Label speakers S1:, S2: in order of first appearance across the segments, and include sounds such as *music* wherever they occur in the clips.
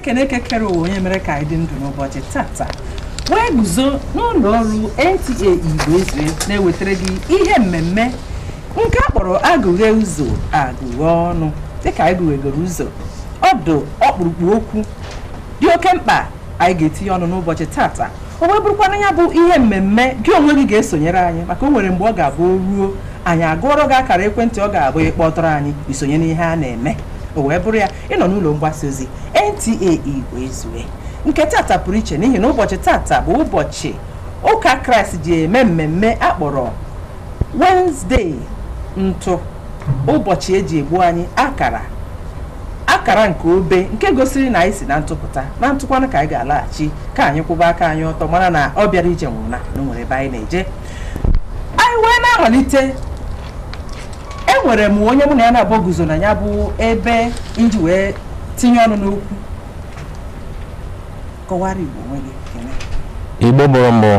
S1: ekeneke kere ụwa onye mere ka anyị dị ndụ n'ụbọchị tata wee guzo n'ụlọ ọrụ NTA Igbo Ezue na-ewetara gị ihe mmemme nke a kpọrọ agụghe ụzọ agụghe ọnụ dịka anyị gụghegoro ụzọ ọdụ ọkpụrụkpụ okwu dị oke mkpa anyị ga-etinye ọnụ n'ụbọchị tata o wee bụrụkwana ya bụ ihe mmemme gị onwe gị ga-esonyere anyị maka o nwere mgbe ọ ga-abụ o ruo anyị agụọrọ gị akara ekwentị ọ ga-abụ ịkpọtọrọ anyị isonye n'ihe a na-eme o wee bụrụ ya ịnọ n'ụlọ mgbasa ozi NTA e wee ezue nke tata pụrụ iche n'ihi na ụbọchị tata bụ ụbọchị ụka kraịst ji eme mmemme akpọrọ Wednesday ntụ ụbọchị eji egbu anyị akara akara nke obe nke gosiri na anyị si na ntụpụta na ntụkwanụ ka anyị ga-alaghachi ka anyị kwụba aka anyị ọtọ mara na ọ bịara ije nwụrụ na o ebe anyị na-eje anyị wee na-amalite nwere m onye mụ na ya na-abụ guzo na ya bụ ebe iji wee tinye ọnụ n'okwu kọwara Igbo gị.
S2: Igbo mụrụ mbụ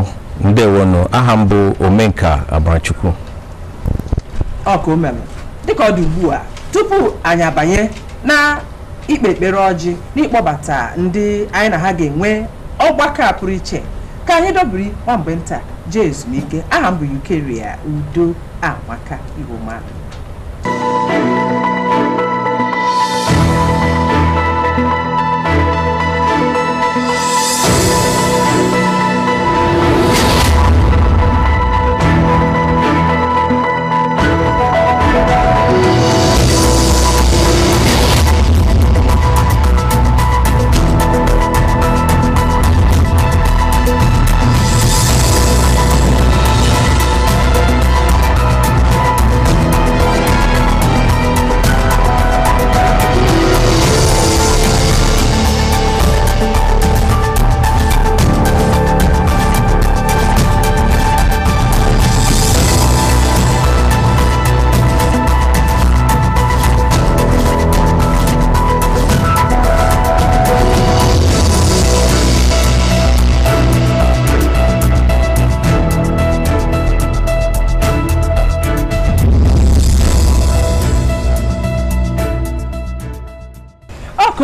S2: ndewonu aha m bụ Omenka Abarachukwu
S1: ọka o dịka ọ dị ugbu a tupu anyị abanye na ikpe ekpere ọjị ịkpọbata ndị anyị na ha ga-enwe ọgbakọ a pụrụ iche ka anyị dobiri nwa mgbe nta jee ezumike aha m bụ Ukeria Udo Amaka Igbo mmadụ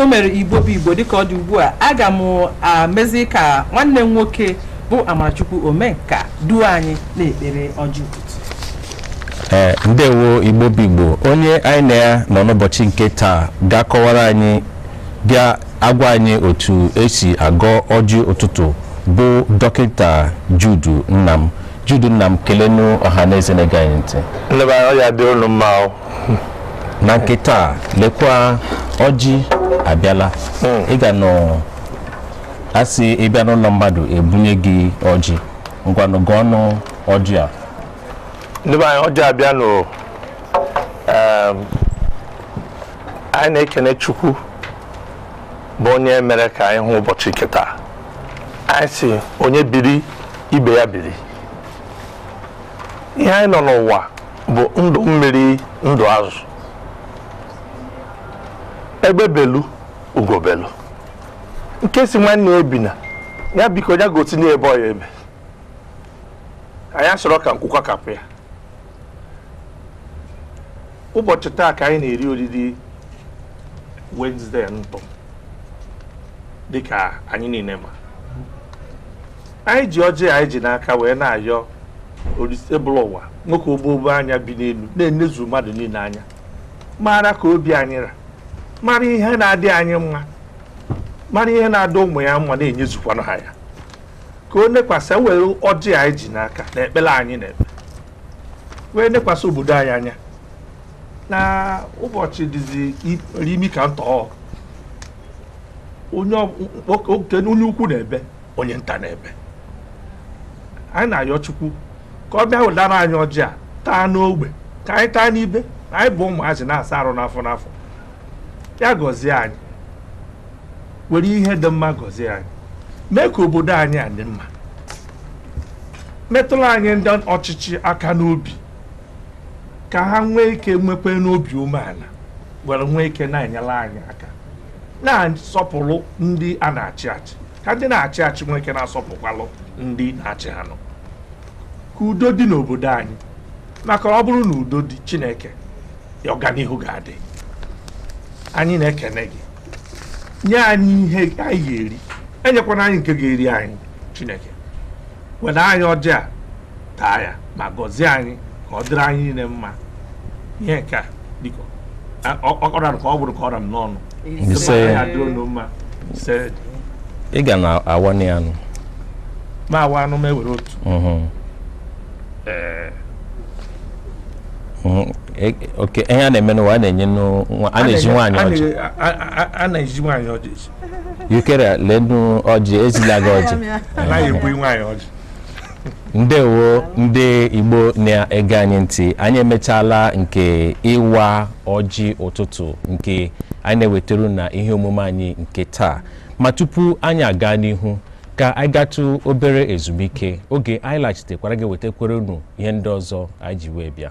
S1: mere igbo bụ igbo dịka ọ dị ugbu a aga m amezi ka nwanne m nwoke bụ amarachukwu omenka duo anyị na-ekpere ọjọọ
S2: e, ndewo igbo bụ igbo onye anyị na ya nọ n'ụbọchị nke taa ga-akọwara anyị bịa agwa anyị otu esi agọ ọjị ụtụtụ bụ dọkịta judu nnam judu nnam kelenụ ọha na eze na-ege anyị ntị na nke taa lekwa ọjị abịala hmm. ị ga nọ asị ịbịa n'ụlọ mmadụ ebunye gị ọjị ngwanụ gụọ ọnụ ọjị a
S3: ndị anyị ọjị abịa nụ ehm, anyị na-ekene chukwu bụ onye mere ka anyị hụ ụbọchị keta anyị si onye biri ibe ya biri ihe anyị nọ n'ụwa bụ ndụ mmiri ndụ azụ egbe belu ugo belu nke si nwanne ya ebina ya biko ya gosi n'ebe ọya ebe anyị asọrọ ka nkwụkwa kapụ ya ụbọchị taa ka anyị na-eri oriri wenezdee ntọ dịka anyị niile ma anyị ji ọjị anyị ji n'aka wee na-ayọ ebụla ụwa nwoke ogbobo anya bi n'elu na-enezu mmadụ niile anya maara ka obi anyị ra mara ihe na-adị anyị mma mara ihe na adị ụmụ ya mma na-enyezukwanụ ha ya ka o nekwasị e were ọjị anyị ji n'aka na ekpere anyị na-ekpe wee nekwasị obodo anyị anya na ụbọchị dịzi imi ka ntọọ onye ukwu na-ebe onye nta na-ebe anyị na-ayọ chukwu ka ọ bịa wedara anyị ọjị a taa n'ogbe ka anyị taa n'ibe anyị bụ ụmụazị na-asa arụ n'afọ n'afọ ya gọzie anyị were ihe dị mma gọzie anyị mee ka obodo anyị a dị mma metụrụ anyị ndị ọchịchị aka n'obi ka ha nwee ike nwekwe n'obi umeala were nwee ike na-enyere anyị aka na-asọpụrụ ndị a na-achị achị ka ndị na-achị achị nwee ike na-asọpụkwalụ ndị na-achị ha ka udo dị n'obodo anyị maka ọ bụrụ na udo dị Chineke ọganihu ga-adị anyị na-ekene gị nye anyị ihe anyị ga-eri enyekwana anyị nke ga-eri anyị chineke were anyị ọjị taa ya ma gọzie anyị ka ọ dịrị anyị niile mma ihe nke a biko ọkọra ka ọ bụrụ ka ọra m n'ọnụ
S2: ị ga na awa anụ
S3: ma awa anụ ma e otu
S2: oke hm, eh, eh, ihe a na-eme n'ụwa a na-enye a na-eji nwaanyị ọjị
S3: a na-eji nwaanyị ọjị
S2: yukere lenu ọjị ezila gị
S3: ọjị
S2: ndewo ndị igbo na-ege anyị ntị anyị emechaala nke ịwa ọjị ụtụtụ nke anyị na na ihe omume anyị nke taa ma tupu anyị aga n'ihu ka anyị gatụ obere ezumike oge anyị laghachitekwara gị wetakwere unu ihe ndị ọzọ anyị ji wee bịa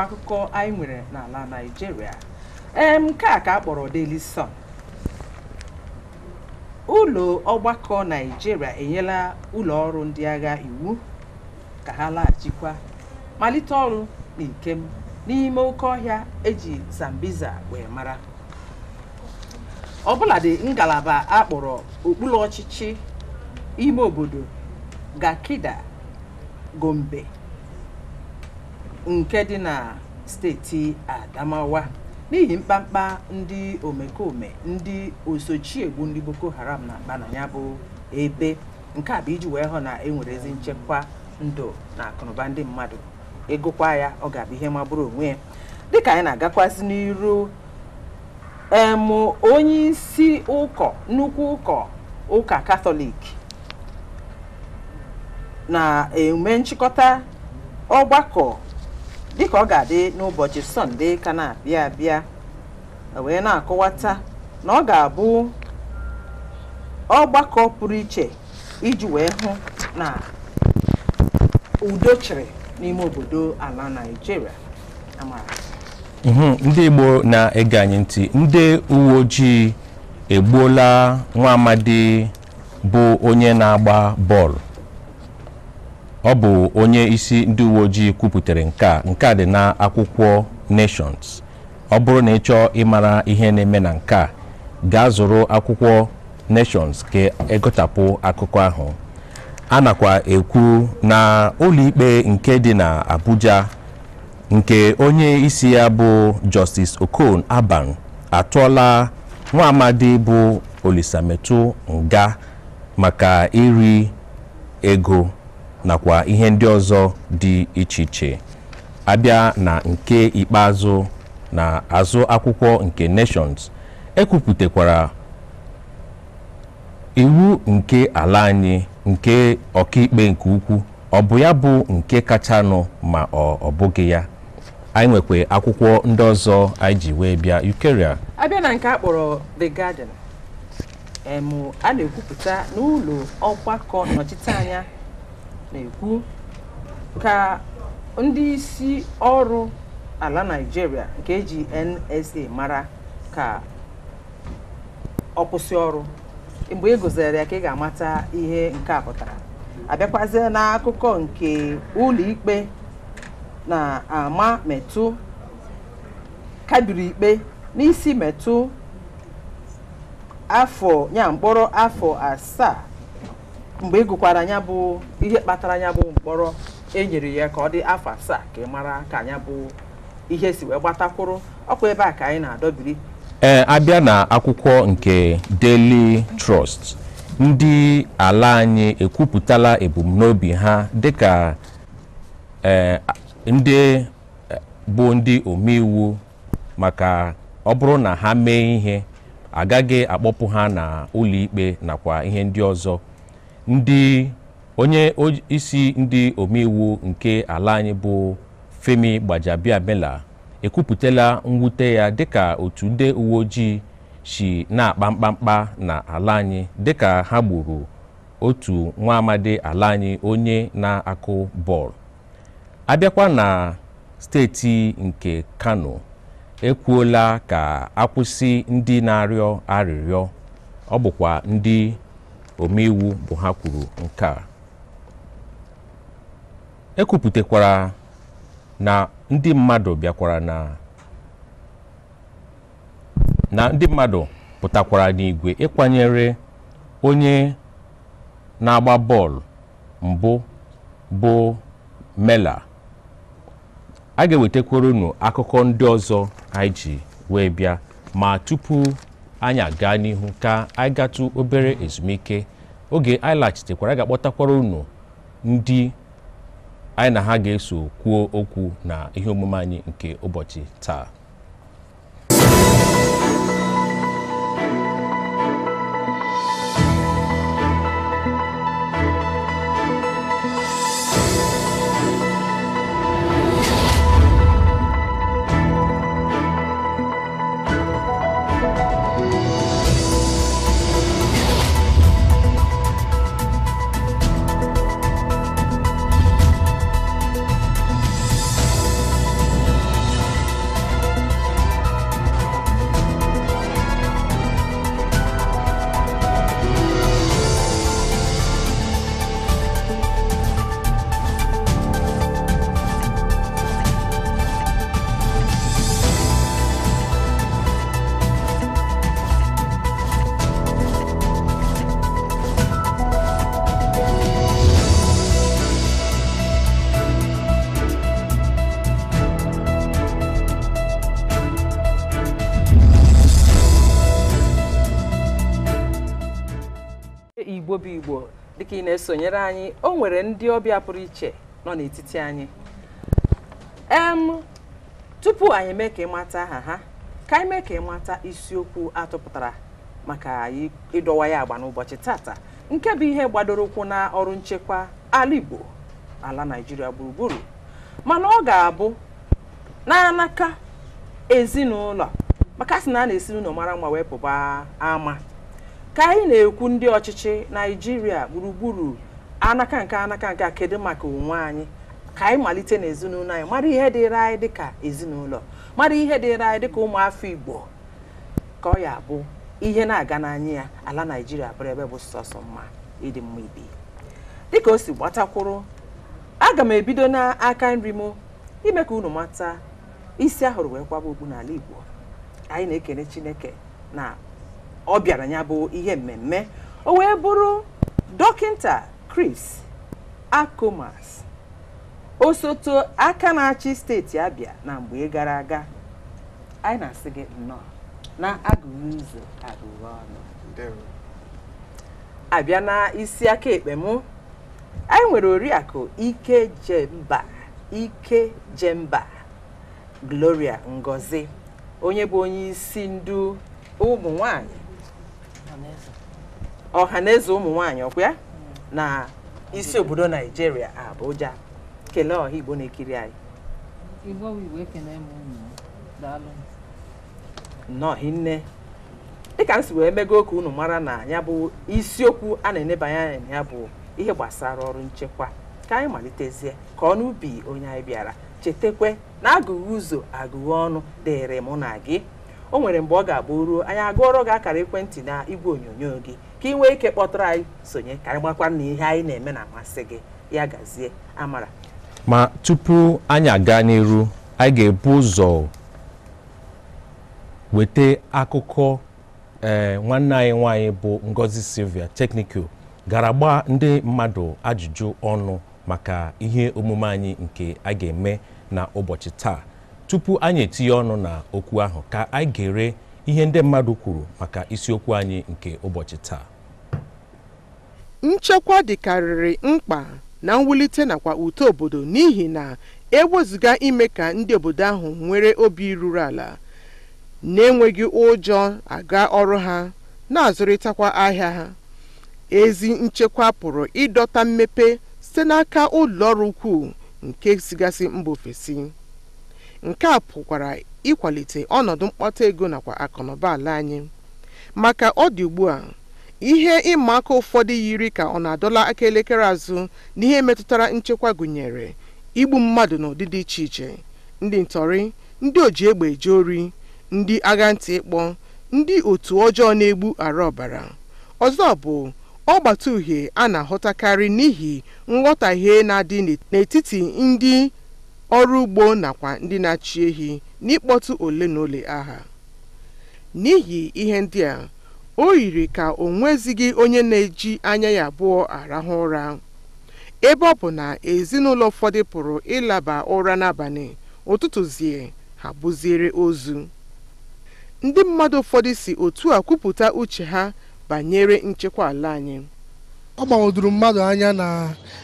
S1: akwụkwọ akụkọ anyị nwere n'ala Naịjirịa ee nke a ka a kpọrọ Daily Sun ụlọ ọgbakọ Naịjirịa enyela ụlọ ọrụ ndị agha iwu ka ha laghachikwa malite ọrụ na n'ime oke ọhịa eji zambiza wee mara ọbụladị ngalaba a kpọrọ okpuru ọchịchị ime obodo gakida Gombe nke dị na steeti Adamawa n'ihi mkpamkpa ndị omekome ndị osochiegbu ndị Boko Haram na-akpa na ya bụ ebe nke a bụ iji wee hụ na enwere ezi nchekwa ndụ na akụnụba ndị mmadụ ịgụkwa e ya ọ ga-abụ ihe magburu onwe ya dịka anyị na-agakwasị n'iru em onye isi ụkọ nnukwu ụkọ ụka katọlik na-eme nchịkọta ọgbakọ dịka ọ ga-adị n'ụbọchị sọnde ka na-abịa abịa e wee na-akọwata na ọ ga-abụ ọgbakọ pụrụ iche iji wee hụ na udo n'ime obodo ala Naịjirịa amara
S2: mhm, ndị Igbo na-ege anyị ndị uwe ojii egbuola nwa amadi bụ onye na-agba bọọlụ ọ bụ onye isi ndị uwe ojii kwupụtara nke a nke a dị akwụkwọ nations ọ bụrụ na ị chọọ ịmara ihe na-eme na nke a gaa zụrụ akwụkwọ nations ka egotapụ akụkọ ahụ a nakwa ekwu na ụlọikpe nke dị na Abuja nke onye isi ya bụ Justice Okon Aban atụọla nwaamadi bụ Olisametu nga maka iri ego nakwa ihe ndị ọzọ dị iche iche abịa na nke ikpeazụ na azụ akwụkwọ nke nations ekwupụtakwara iwu nke ala anyị nke ọkaikpe nke ukwu ọ bụ ya bụ nke kachanụ ma ọ bụghị ya anyị nwekwa akwụkwọ ndị ọzọ anyị ji wee bịa ukeria
S1: abịa na nke akpọrọ the garden a na-ekwupụta n'ụlọ ọgbakọ anya. na-ekwu ka ndị isi ọrụ ala Naịjirịa nke eji NSA mara ka ọ kwụsị ọrụ mgbe ị e gụzere ya ka ị ga-amata ihe nke a pụtara abịakwazie n'akụkọ nke ụlọ ikpe na-ama metụ kabiri ikpe n'isi metụ afọ ya mkpọrọ afọ asaa mgbe ị e gụkwara ya bụ ihe kpatara ya bụ mkpọrọ enyere ya ka ọ dị afọ asaa ka ị mara ka anya bụ ihe si wee gbatakwụrụ ọkwa ebe a ka anyị na-adọbiri
S2: ee abịa na akwụkwọ nke Daily Trust ndị ala anyị ekwupụtala ebumnobi ha dịka e, ndị e, bụ ndị omeiwu maka ọ bụrụ na ha mee ihe agaghị akpọpụ ha na ụlọikpe nakwa ihe ndị ọzọ ndị onye isi ndị omeiwu nke ala anyị bụ Femi gbajabiamela ekwupụtala mwute ya dịka otu nde uwe ojii si na-akpa mkpamkpa na ala anyị dịka ha gburu otu nwa amadi ala anyị onye na-akụ bọọlụ abịakwa na steeti nke Kano ekwuola ka akwụsị ndị na-arịọ arịrịọ ọ bụkwa ndị omeiwu bụ ha kwuru nke a ekwupụtakwara na ndị mmadụ bịakwara na ndị mmadụ pụtakwara n'igwe ịkwanyere onye na-agba bọọlụ mbụ bụ mela a ga-ewetakwara unu akụkọ ndị ọzọ anyị ji wee bịa ma tupu anyị gaa n'ihu ka anyị gatụ obere ezumike oge anyị laghachitekwara ga-akpọtakwara unu ndị anyị na ha ga-eso kwuo okwu na ihe omume anyị nke ụbọchị taa
S1: na-esonyere anyị o nwere ndị ọbịa pụrụ iche nọ n'etiti anyị em tupu anyị eme ka ịmata aha ha ka anyị mee ka ịmata isiokwu atụpụtara maka ịdọwa ya agba n'ụbọchị tata nke bụ ihe gbadoro ụkwụ na ọrụ nchekwa ala Igbo ala Naịjirịa gburugburu mana ọ ga-abụ n'anaka ezinụlọ maka sị na a na-esi n'ụlọ mara mma wee pụba ama ka anyị na-ekwu ndị ọchịchị naijiria gburugburu anaka nke anaka nke kedu maka onwe anyị ka anyị malite n'ezinụlọ anyị mara ihe dịịrị anyị dịka ezinụlọ mara ihe dịịrị anyị dịka ụmụafọ igbo ka ọ ya bụ ihe na-aga n'anya ya ala naijiria bụrụ ebe bụ sọsọ mma ịdị mma ibi dịka o si gbatakwụrụ aga m ebido n'aka nri m ime ka unu mata isi ahụrụ wee kwaba okpu n'ala igbo anyị na-ekene chineke na ọ bịara ya bụ ihe mmemme o wee bụrụ dọkịta kris Akomas osote aka na-achị steeti Abia na mgbe gara aga anyị na-asị gị nnọọ na agụrụ ụzọ agụrụ ọnụ abịa na isi aka ekpe mụ anyị nwere oriakụ Ike Jemba Ike Jemba Gloria Ngozi onye bụ onye isi ndu ụmụ nwanyị ọhaneze ụmụ nwaanyị ọkwa na isi obodo naijiria abuja kelee ọha igbo na-ekiri anyị nnọọ nne dịka m si wee mego ka unu mara na ya bụ isiokwu a na-enebanye anya na ya bụ ihe gbasara ọrụ nchekwa ka anyị malitezie ka ọnụ ubi onye anyị bịara chetakwe na agụghị ụzọ agụghị ọnụ dịrị mụ na gị o nwere mgbe ọ ga-agba ruo anyị agụọrọ gị akara ekwentị na igwe onyonyo gị ka ị nwee ike kpọtụrụ anyị sonye ka anyị gbakwa na ihe anyị na-eme na-amasị gị ya gazie amara
S2: ma tupu anyị aga n'iru anyị ga-ebu ụzọ weta akụkọ ee eh, nwanne anyị nwanyị bụ Ngozi Silvia Teknikul gara gbaa ndị mmadụ ajụjụ ọnụ maka ihe omume anyị nke a ga-eme n'ụbọchị taa tupu anyị etinye ọnụ na okwu ahụ ka anyị gere ihe ndị mmadụ kwuru maka isiokwu anyị nke ụbọchị taa
S4: nchekwa dịkarịrị mkpa na mwulite nakwa uto obodo n'ihi na ewezụga ime ka ndị obodo ahụ nwere obi ruru ala na-enweghị ụjọ aga ọrụ ha na-azụrịtakwa ahịa ha ezi nchekwa pụrụ ịdọta mmepe site n'aka ụlọ ọrụ ukwuu nke sigasị mba ofesi nke a pụkwara ịkwalite ọnọdụ mkpata ego nakwa akụnụba ala anyị maka ọ dị ugbu a ihe ịma aka ụfọdụ yiri ka ọ na-adọla aka elekere azụ n'ihe metụtara nchekwa gụnyere igbu mmadụ n'ụdị dị iche iche ndị ntọrị ndị oji egbe eje ori ndị agha ntị ịkpọ ndị otu ọjọọ na-egbu ara ọbara ọzọ bụ ọgbata uhie a na-ahụtakarị n'ihi nghọtahie na-adị n'etiti ndị ọrụ ugbo nakwa ndị na-achị ehi n'ịkpọtụ ole na ole aha. N'ihi ihe ndị a, o yiri ka o nwezighị onye na-eji anya ya abụọ arahụ ụra, ebe ọ bụ na ezinụlọ ụfọdụ pụrụ ịlaba ụra n'abalị, ụtụtụ zie ha bụziere ozu. Ndị mmadụ ụfọdụ si otu a kwupụta uche ha banyere nchekwa ala anyị. Ọ gbagwojuru mmadụ anya na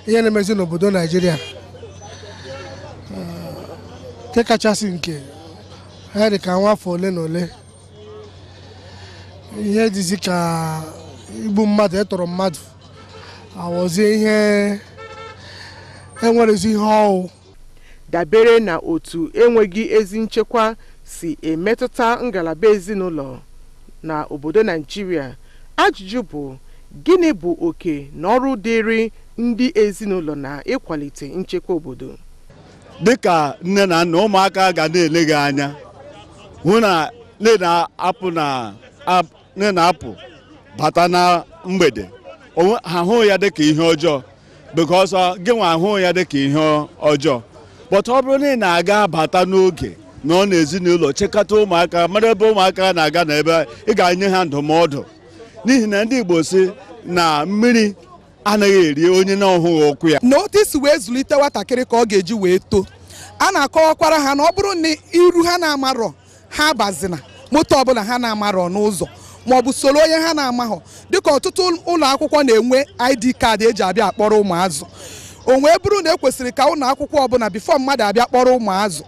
S4: ihe na-emezi n'obodo Naịjirịa. nke kachasị nke ha dị ka nwa afọ ole na ole ihe dịzi ka igbu mmadụ ịtọrọ e mmadụ awọzie ihe enwerezi ihe ọwụ dabere na otu enweghị ezi nchekwa si emetụta ngalaba ezinụlọ na obodo naijiria ajụjụ bụ gịnị bụ oke na ọrụ dịịrị ndị ezinụlọ na ịkwalite nchekwa obodo dịka nne na nna ụmụaka ga
S5: na-ele gị anya hụ na nne na-apụ bata na mgbede ha hụ ya dịka ihe ọjọọ because gị gịnwa ahụ ya dịka ihe ọjọọ But ọ bụrụ na ị na-aga bata n'oge na ọ n'ezinụlọ chekata ụmụaka mara ebe ụmụaka na-aga n'ebe ị ga-enye ha ndụmọdụ n'ihi na ndị Igbo si na mmiri anaghị eri onye na-ọhụghị
S4: ọkụ ya na wee zụlite nwatakịrị ka ọ ga-eji wee too a na-akọwakwara ha na ọ bụrụ na iru ha na-amarọ ha abazina moto ọbụla ha na-amarọ n'ụzọ bụ soro onye ha na amahọ dịka ọtụtụ ụlọ akwụkwọ na-enwe ID kaadị eji abịa akpọrọ ụmụazụ onwee bụrụ na e kwesịrị ka ụlọ akwụkwọ ọbụla bifo mmadụ abịa kpọrọ ụmụazụ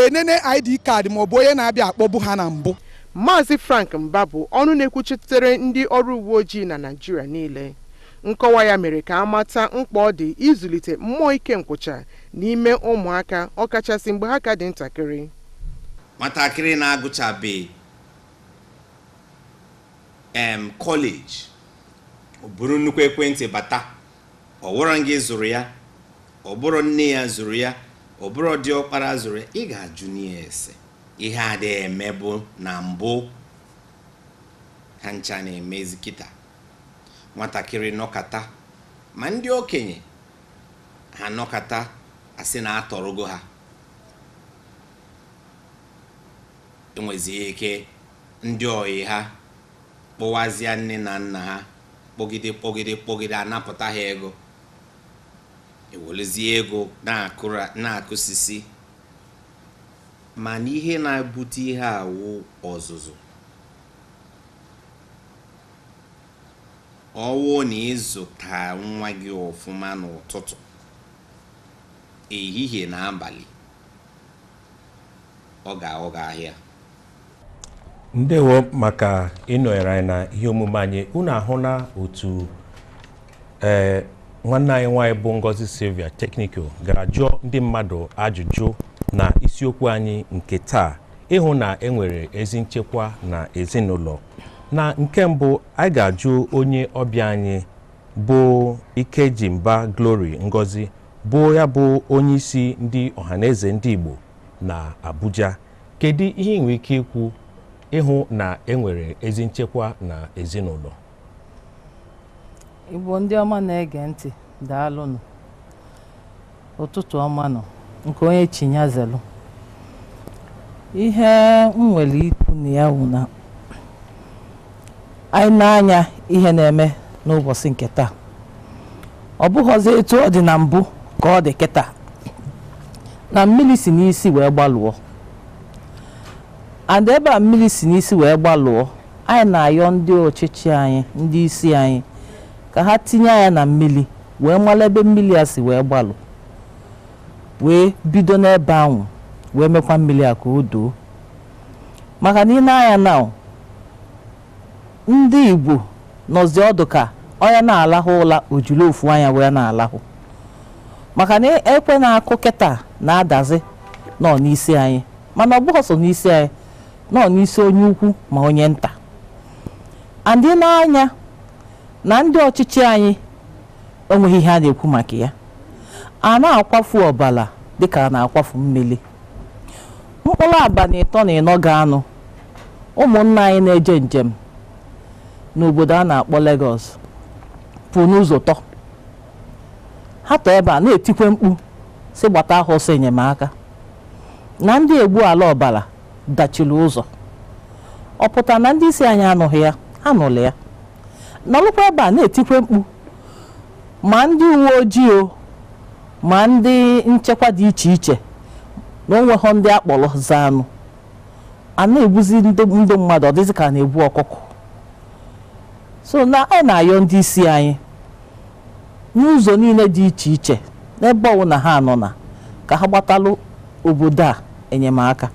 S4: enene ID kaadị bụ onye na-abịa akpọbu ha na mbụ Maazị Frank Mba bụ ọnụ na-ekwuchitere ndị ọrụ uwe ojii na naijiria niile nkọwa ya mere ka a mata mkpa ọ dị ịzụlite mmụọ ike nkwụcha n'ime ụmụaka ọkachasị mgbe ha ka dị ntakịrị
S6: nwatakịrị na-agụchabe em kọleji ọ bụrụ nnukwu ekwentị bata ọ wụrụ gị zụrụ ya ọ bụrụ nne ya zụrụ ya ọ bụrụ ọkpara zụrụ ya ị ga-ajụ n'ihe ese ihe adịghị emebụ na mbụ ha ncha na-emezi kịta nwatakịrị nọkata ma ndị okenye ha nọkata asị na atọrọgo ha enwezie ike ndị oyi ha kpụwazie nne na nna ha kpọgide kpọgide kpọgide anapụta ha ego ewelezie ego na-akụsisi mana ihe na-ebute ihe awụ ọzụzụ ọwụ na ịzụta nwa gị ọfụma n'ụtụtụ ehihie na abalị ọ ga ahịa
S2: ndewo maka ịnọnyere anyị na ihe omume anyị unu ahụ na otu e, nwanne anyị nwanyị bụ Ngozi Silvia Teknikal gara jụọ ndị mmadụ ajụjụ na isiokwu anyị nke taa ịhụ na enwere ezi nchekwa na ezinụlọ na nke mbụ anyị ga-ajụ onye ọbịa anyị bụ Ikejimba Glory Ngozi bụ ya bụ onye isi ndị ọhaneze ndị Igbo na Abuja kedu ihe ị ike ikwu ịhụ na enwere ezi nchekwa na ezinụlọ
S7: Igbo ndị ọma na-ege ntị daalụnụ ụtụtụ ọma nọ
S2: nke onye chinyazelu
S7: ihe m nwere ikwu na ya wụ na anyị na-anya ihe na-eme n'ụbọchị nke taa ọ bụghọzi etu ọ dị na mbụ ka ọ dị kịta na mmiri si n'isi wee gbalụọ and ebe a mmiri si n'isi wee gbalụọ anyị na-ayọ ndị ọchịchị anyị ndị isi anyị ka ha tinye anya na mmiri wee mara ebe mmiri a si wee gbalụ wee bido n'ebe ahụ wee mekwa mmiri a ka o doo maka na ị na-anya na ndị Igbo nọzi ọdụ ka onye na-alahụ ụla ojulu ofu anya wee na-alahụ maka na e, ekwe na-akụ kịta na-adazi nọ n'isi anyị mana ọ bụghị sọ n'isi anyị nọ n'isi onye ukwu ma onye nta Adị n'anya na ndị ọchịchị anyị enweghị ihe a na-ekwu maka ya a na-akwafu ọbala dịka a na-akwafu mmiri mkpụrụ aba na ịtọ na ịnọ ga-anụ ụmụnna anyị na-eje njem n'obodo a na-akpọ Lagos pụ n'ụzọ tọ ha tọ ebe a na-etikwe mkpu si gbata ahụ ọsọ enyemaka na ndị egbu ala ọbara dachiri ụzọ ọ pụta na ndị isi anyị anụghị ya anụlị ya n'ọlụkwa ebe a na-etikwe mkpu ma ndị uwe ojii o ma ndị nchekwa dị iche iche na onweghọ ndị akpọrọ zaanụ a na-egbuzi ndị mmadụ ọ ka a na-egbu ọkụkọ so na ọ na-ayọ ndị isi anyị n'ụzọ niile dị iche iche n'ebe ọbụla ha nọ na ka ha gbatalụ obodo a enyemaka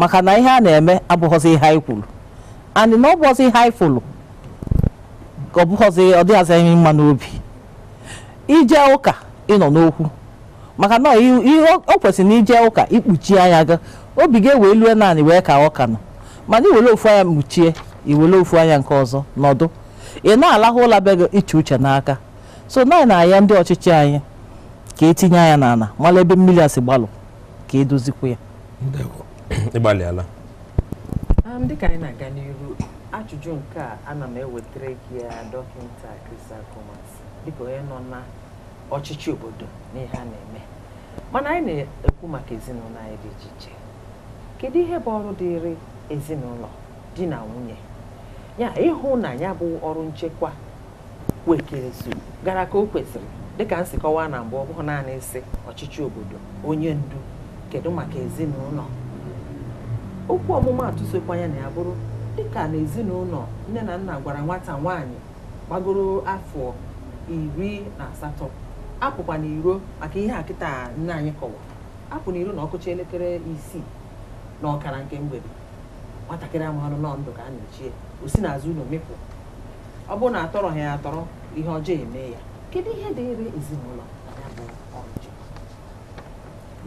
S7: maka na ihe a na-eme abụghọzi ihe anyị kwuru anyị na ọ bụghọzi ihe anyị fụrụ ka ọ bụghọzi ọ dịghazị anyị mma n'obi ije ụka ịnọ n'okwu maka na ihe o kwesịrị na ije ụka ikpuchi anya gị obi gị ewee lue naanị wee ka ọka nọ mana iwere ofu anya mkpuchie iwele ofu anya nke ọzọ nọdụ ị na-alahụ ụla be gị iche uche n'aka so naanị na ya ndị ọchịchị anyị ka etinye anya n'ala mala ebe mmiri a si gbalụ ka edozikwu ya
S2: ịgbalịala
S1: um, dịka anyị na-aga n'iru ajụjụ nke a ana m ewetara gị ya dọkịta Chris Akumas dịka onye nọ na ọchịchị obodo n'ihe a na-eme mana anyị na-ekwu maka ezinụlọ anyị dị iche iche kedu ihe bụ ọrụ dịịrị ezinụlọ di na nwunye ya ịhụ na ya bụ ọrụ nchekwa
S7: kwekezu
S1: gara ka o kwesịrị dịka nsikọwa na mbụ ọ bụrụ naanị isi ọchịchị obodo onye ndu kedu maka ezinụlọ okwu ọmụma sokwa ya na ya bụrụ dịka na ezinụlọ nne na nna gwara nwata nwaanyị gbagoro afọ iri na asatọ apụkwa n'iro maka ihe a kịta nne anyị kọwa apụ n'iro na ọkụcha elekere isii na ọkara nke mgbede nwatakịrị amahọrọ nọ ndụ ka a na-echie o si n'azụ ụlọ mịpụ ọ bụrụ na atọrọ ha ya atọrọ ihe ọjọọ eme ya kedu ihe dịịrị ezinụlọ ya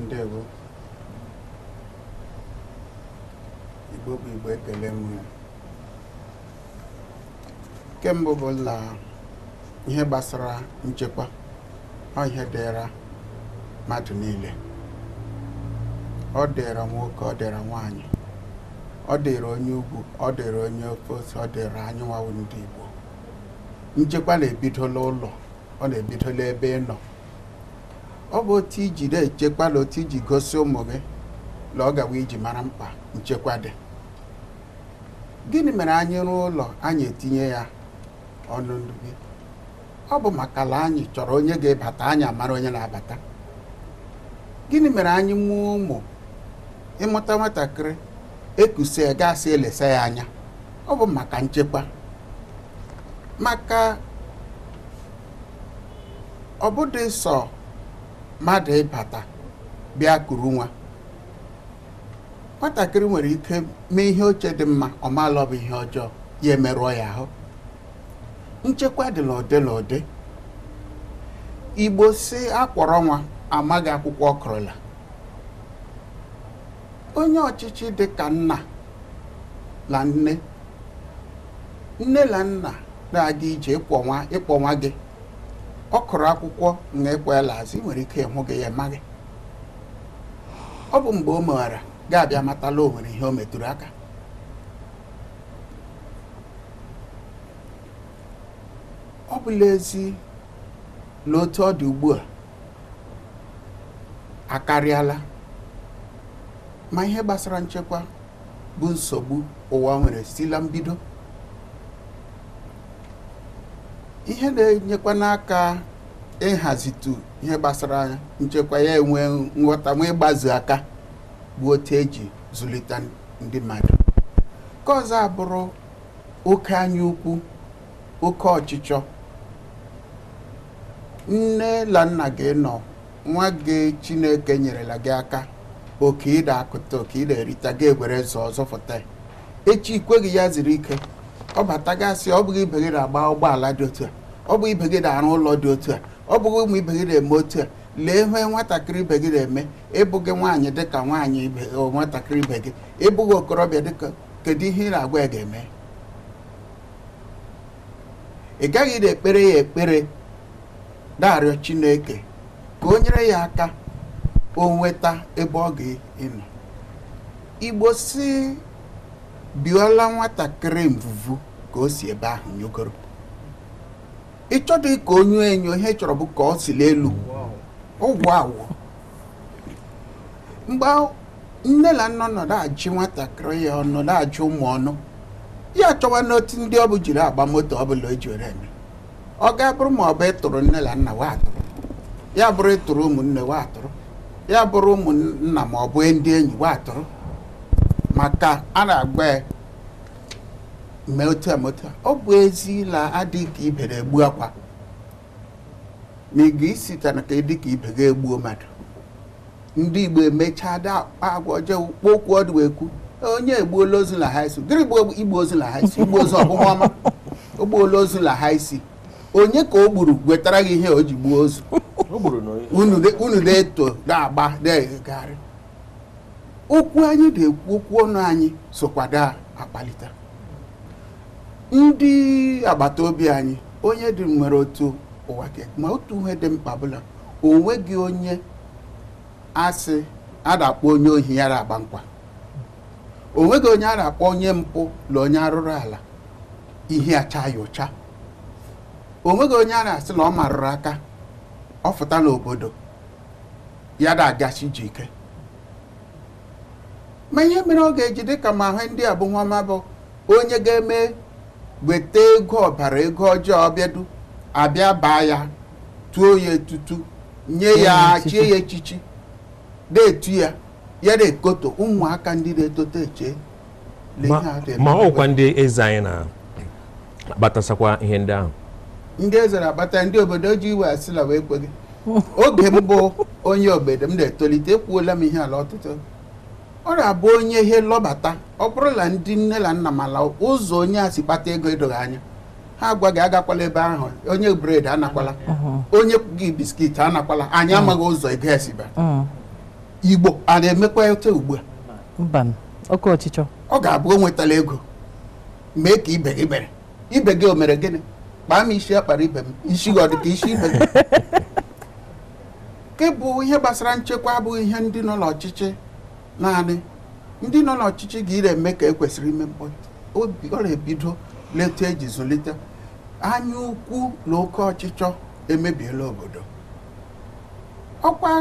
S5: ndewo igbo bụ igbo ekele m kemgbe bụ na ihe gbasara nchekwa ọ ihe dịra mmadụ niile ọ dịra nwoke ọ dịra nwaanyị ọ dịrị onye ugwu ọ dịrị onye ofe ọ dịrị anyịnwawụ ndị Igbo nchekwa na-ebidola ụlọ ọ na-ebidola ebe ị nọ ọ bụ otu iji na-echekwala otu iji gosi ụmụ gị na ọ gawa iji mara mkpa nchekwa dị gịnị mere anyị rụọ ụlọ anyị etinye ya ọnụ ndụ gị ọ bụ maka na anyị chọrọ onye ga-ebata anyị amara onye na-abata gịnị mere anyị mụọ ụmụ ịmụta nwatakịrị ekusie gasị elesa ya anya ọ bụ maka nchekwa maka ọ sọ mmadụ ịbata bịa kuru nwa nwatakịrị nwere ike mee ihe oche dị mma ọ maala ọ ihe ọjọọ ya emerụọ ya ahụ nchekwa dị n'ụdị n'ụdị igbo si akpọrọ nwa amaghị akwụkwọ ọkụrụla onye ọchịchị dị ka nna na nne nne na nna na-adị ije ịkpọnwa nwa gị ọ kụrụ akwụkwọ na ịkpọela azụ ị nwere ike ịhụ gị ya gị. ọ bụ mgbe o meghara ga-abịa matala o nwere ihe o metụrụ aka ọ bụla ezi na otu ọ dị ugbu a akarịala ma ihe gbasara nchekwa bụ nsogbu ụwa nwere sila mbido ihe na-enyekwa n'aka ịhazitu ihe gbasara nchekwa ya enwe nghọta nwa aka bụ otu eji zụlite ndị mmadụ nke ọzọ abụrụ oke ukwu oke ọchịchọ nne na nna gị nọ nwa gị chineke nyerela gị aka oke ị na-akụta oke ị erita ga-egwere nso ọzọ ya echi ikweghị ya ziri ike ọ bata gasị ọ bụghị ibe gị na-agba ụgbọala dị otu a ọ bụghị ibe gị na-arụ ụlọ dị otu a ọ bụghị ụmụ ibe gị na-eme otu a lee ihe nwatakịrị ibe gị na-eme ịbụghị nwaanyị dịka nwaanyị nwatakịrị ibe gị ịbụghị okorobịa ka kedu ihe ị na-agwa ya ga-eme ị gaghị na-ekpere ya ekpere na-arịọ Chineke ka o nyere ya aka o nweta ebe ọ ga-enọ igbo si biola nwatakịrị mvuvu ka o si ebe ahụ nyogoro ịchọdụ ka onye enyo ihe chọrọ bụ ka ọ si n'elu ụgwọ awụ mgbe nne na nna nọdụ ajụ nwatakịrị ya ọnụ na-ajụ ụmụ ọnụ ya chọwa n'otu ndị ọ bụ jiri agba moto ọbụla o ji were eme ọ ga-abụrụ ma ọ bụ ịtụrụ nne na nna wa atụrụ ya bụrụ ịtụrụ ụmụnne wa atụrụ ya bụrụ ụmụnna ma ọ bụ ndị enyi atụrụ maka a na-agba mee otu a ọ bụ ezi na adịghị ka ibe na-egbu akwa ma ị ga-esite na ka ịdị ka ibe ga-egbuo mmadụ ndị Igbo emechaa da agwa ọjọọ okwu ọdụ ekwu onye egbuola ozu na haisi gịrị bụ igbu ozu na haisi igbu ozu ọbụma ọma ogbuola ozu na haisi onye ka o gburu wetara gị ihe o ji gbuo ozu unu na-eto na-agba na-egharị okwu anyị na-ekwu okwu ọnụ anyị a akpalite ndị agbata obi anyị onye dị nwere otu ụwa ma otu ihe dị mkpa bụla onwe gị onye asị a na-akpọ onye ohi ya agba nkwa Onwe gị onye a na-akpọ onye mpụ na onye arụrụ ala ihe acha ụcha o onye a na-asị na ọ marụrụ aka ọ fụtala obodo ya dagachi ike ma ihe mere ọ ga-eji dịka ma ahụ ndị abụnwama bụ onye ga-eme weta ego ọbara ego ọjọọ ọbịadu abịa baa ya tuo ya etutu nye ya chie ya echichi na-etu ya ya na-ekoto ụmụaka ndị na-etoto eche ma ọkwa
S2: ndị eze anyị na ihe ndị ahụ
S5: ndị ezere abata ndị obodo ji iwe asịla wee gị oge mbụ onye obodo m na-etolite ekwuola m ihe ala ọtụtụ ọ na-abụ onye ihe lọbata ọ bụrụ na ndị nne na nna mala ụzọ onye a si kpata ego edoghị anya ha agwa gị agakwala ebe ahụ onye bred anakwala mm-hmm. onye gị biskit anakwala anyị mm. amaghị ụzọ ego esiba mm. igbo a na-emekwa eto ugbu a ọ ga-abụ o nwetala ego mee ka ibe gị mere ibe gị o mere gịnị kpaa m isi akpara ibe m isi gị ọ dị ka isi ibe m nke bụ ihe gbasara nchekwa abụghị ihe ndị nọ n'ọchịchị naanị ndị nọ n'ọchịchị ga eme ka ekwesịrị ime mkpọtụ obi ebido leta eji zụlite anya ukwu na oke ọchịchọ emebiela obodo ọkwa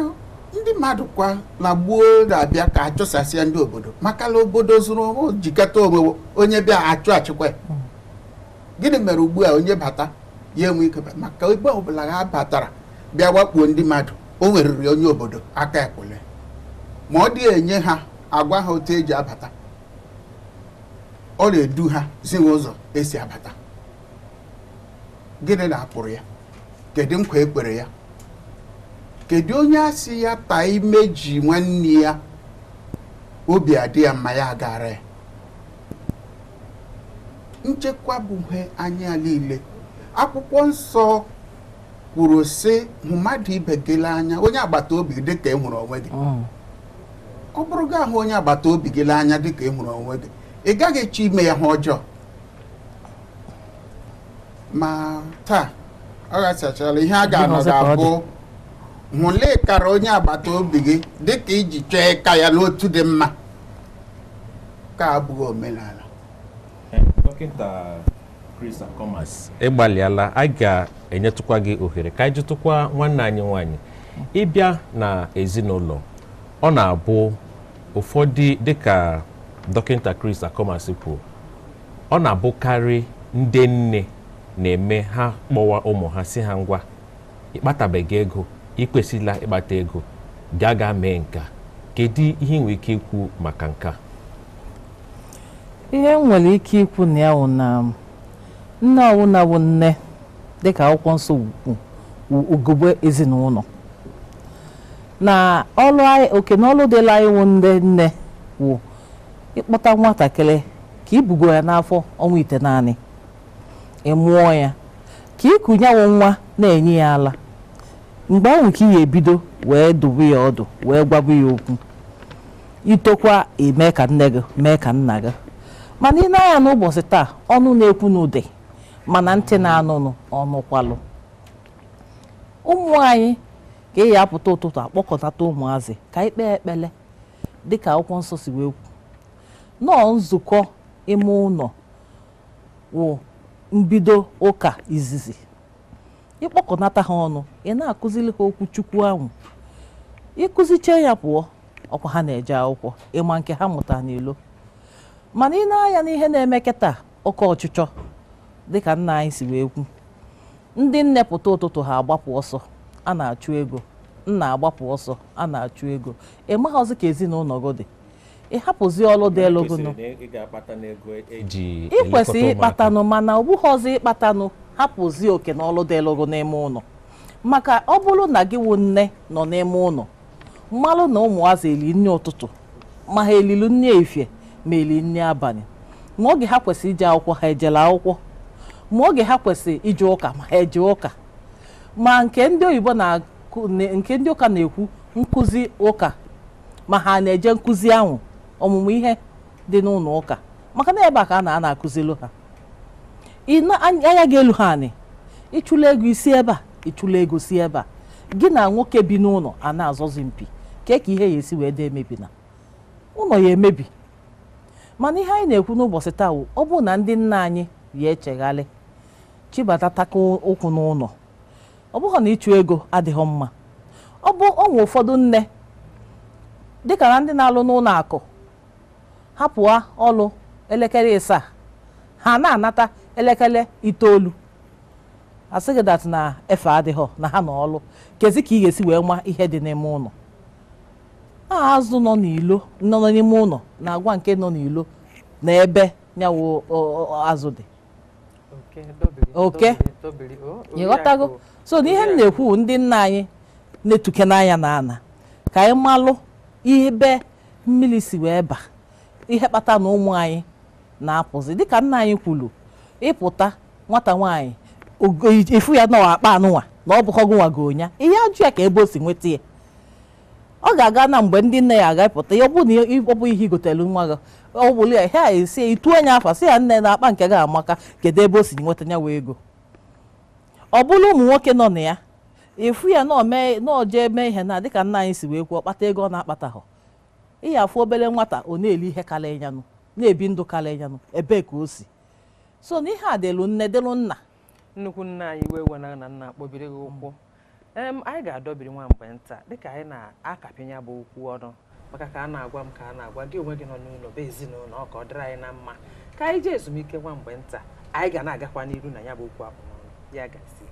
S5: ndị mmadụ kwa na gbuo na-abịa ka achụsasịa ndị obodo makala obodo zụrụ jikọta onwe onye bịa achụ achịkwa mm. gịnị mere ugbu a onye bata ya enwe ike maka ebe ọbụla ha batara bịa wakpuo ndị mmadụ o weriri onye obodo aka ekwule ma ọ dị enye ha agwa ha otu eji abata ọ na-edu ha zi ụzọ esi abata gịnị na-akpụrụ ya kedu nkwa ekpere ya kedu onye asị ya taa ime ji nwanne ya obi adị ya mma ya agara ya nchekwa bụ ihe anya niile akwụkwọ nsọ kwuru sị mmadụ ibe gị anya onye agbata obi dị ka ị onwe gị oh. ọ bụrụ gị ahụ onye agbata obi gị anya dị ka ị e onwe gị ị gaghị echi ime ya ha ọjọọ ma taa ọ gasịchara ihe a ga-anọ ga-abụ hụlee kara onye agbata obi gị dị ka iji chọọ ịka ya n'otu dị mma ka abụghị omenala dọkịta
S2: Chris Akomas ịgbalịala a ga-enyetụkwa gị ohere ka anyị jụtụkwa nwanne anyị nwanyị ịbịa na ezinụlọ ọ na-abụ ụfọdụ dịka dọkịta Chris Akomas kwuo ọ na-abụkarị ndị nne na-eme ha kpọwa ụmụ ha si ha ngwa ịkpatabeghị ego ịkwesịla ịkpata ego gaa gaa mee nka kedu ihe nwere ike ikwu maka nka
S7: ihe m nwere ike ikwu na ya wụ na nne ọwụna nne dịka akwụkwọ nsọ ugogbe ezinụlọ na ọlụ anyị oke ọlụ dịla anyị wụ ndị nne wụ ịkpọta nwatakịrị ka ibugo ya n'afọ ọnwa ite naanị ịmụọ ya ka ịkụnyanwụ nwa na-enye ya ala mgbe ahụ ka ị ebido wee dobe ya ọdụ wee gwabu ya okwu itokwa eme ka nne gị mee ka nna gị mana ị na n'ụbọchị taa ọnụ na-ekwu n'ude mana ntị na-anụnụ ọnụkwalụ ụmụ anyị ka eyi apụta ụtụtụ akpọkọtata ụmụazị ka ị kpee ekpele dịka akwụkwọ nsọ si wee kwu nọọ nzukọ ime ụlọ wụ mbido ụka izizi ịkpọkọnata ha ọnụ ị na-akụziri ha okwu chukwu ahụ ịkụziche ya pụọ ọkwa ha na-eje akwụkwọ ịma nke ha mụta n'ilo mana ị na-anya n'ihe na-eme taa oke ọchịchọ dịka nna anyị si wee kwu ndị nnepụta ụtụtụ ha agbapụ ọsọ a na-achụ ego nna agbapụ ọsọ a na-achụ ego ị e ka ezinụlọ gị dị ị e hapụzi ọlụ dị elu
S2: ị e- kwesị
S7: ịkpatanụ mana ọbụghị ọzọ ịkpatanụ hapụzi oke na ọlụ dị elu n'ime ụlọ maka ọ bụrụ na gị wụ nne nọ n'ime ụlọ mmalụ na ụmụazị eli nri ụtụtụ ma ha elilu nri efie meli nri abalị ma oge ha kwesịrị ije akwụkwọ ha ejela akwụkwọ ma oge ha kwesịrị ije ụka ma ha eje ụka ma nke ndị oyibo na nke ndị ụka na-ekwu nkụzi ụka ma ha na-eje nkụzi ahụ ọmụmụ ihe dị n'ụlọ ụka maka na ebe a ka a na-ana akụzilu ha anya ga-elu ha anị ịchụla ego isi ebe a ịchụla ego si ebe a gị na nwoke bi n'ụlọ a na-azọzi mpi kee ka ihe ya esi wee dị e na ụlọ ya emebi mana ihe anyị na-ekwu n'ụbọchị taa wụ ọ bụrụ na ndị nna anyị ya echeghalị chibata taka ụkwụ n'ụlọ ọ bụghị na ịchụ ego adịghị mma ọ bụ onwe ụfọdụ nne dịka na ndị na-alụ n'ụlọ akụ hapụa ọlụ elekere ịsaa ha na-anata elekere itoolu asịgị dat na efe adịghọ na ha na ọlụ kezi ka ị ga-esi wee nwa ihe dị n'ime ụlọ azụ nọ n'ilo nọ n'ime ụlọ na agwa nke nọ n'ilo na ebe nyawo azụ dị
S1: oke ịghọtago
S7: so n'ihe m na-ekwu ndị nna anyị na-etuke n'anya na ana ka anyị malụ ibe mmiri si wee ba ihe kpata na ụmụ anyị na-apụzi dịka nna anyị kwuru ịpụta nwata nwaanyị ifu ya na akpa anụnwa na ọ bụkọgụ nwago nya ihe ajụ ya ka ebe o si nweta ya ọ ga-aga na mgbe ndị nne ya agapụta ya ọ bụna na ọ bụ ihe igotelu nwa gị ọ bụrụ ya ha esi itu anya afa si ya nne na akpa nke gị amaka kedu ebe o si nweta ya wee ego ọ bụrụ ụmụ nwoke nọ na ya ịfụ ya n'oje mee ihe na dịka nna anyị si wee kwuo kpata ego ọ na-akpataghọ ihe afụ obere nwata ọ na-eli ihe karịa yanụ na-ebi ndụ karịa yanụ ebee ka o si so na ihe a delu nne delu nna
S1: nnukwu nna anyị wee wena na nna akpọbiri gị ụkwụ anyị ga-adọbiri nwa mgbe nta dịka anyị na-akapịnya bụ okwu ọnụ maka ka a na-agwa m ka a na-agwa gị onwe gị nọ n'ụlọ bụ ezinụlọ ọ ka ọ dịrị anyị na mma ka anyị jee ezumike nwa mgbe nta anyị ga na-agakwa n'iru na ya bụ okwu abụmọnụ ya gasị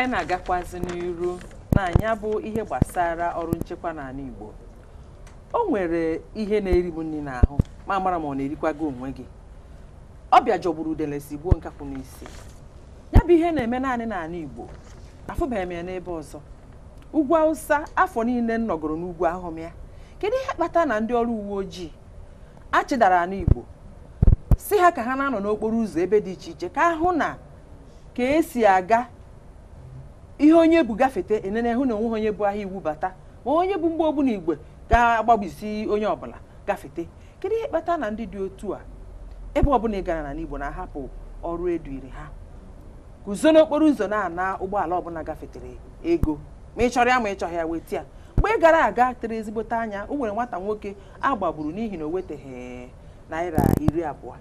S1: anyị na-agakwazi n'iru na anya bụ ihe gbasara ọrụ nchekwa n'ala Igbo o nwere ihe na-eri m nri n'ahụ ma mara ma ọ na-erikwago onwe gị ọbịa jọgburu udele si gbuo nkakwụ n'isi ya bụ ihe na-eme naanị n'ala Igbo afụbeghị m ya n'ebe ọzọ ugwu Awụsa afọ niile m nọgoro n'ugwu ahụm ya kedu ihe kpata na ndị ọrụ uwe ojii achịdara ala Igbo si ha ka ha na-anọ n'okporo ụzọ ebe dị iche iche ka ahụ na ka esi aga ihe onye bụ gafete enene hụ na onwe onye bụ ahịa iwu bata ma onye bụ mgbe ogbuna igwe ga-agbagbisi onye ọbụla gafete kedu ihe kpata na ndị dị otu a ebe ọbụla ị gara na n'Igbo na-ahapụ ọrụ eduiri ha guzo n'okporo ụzọ na-ana ụgbọala ọbụla gafetere ego ma ị chọrọ ya ma ị chọghị ya weta ya mgbe ị gara aga tere ezigbote anya o nwere nwata nwoke agbagburu n'ihi na o weteghị naira iri abụọ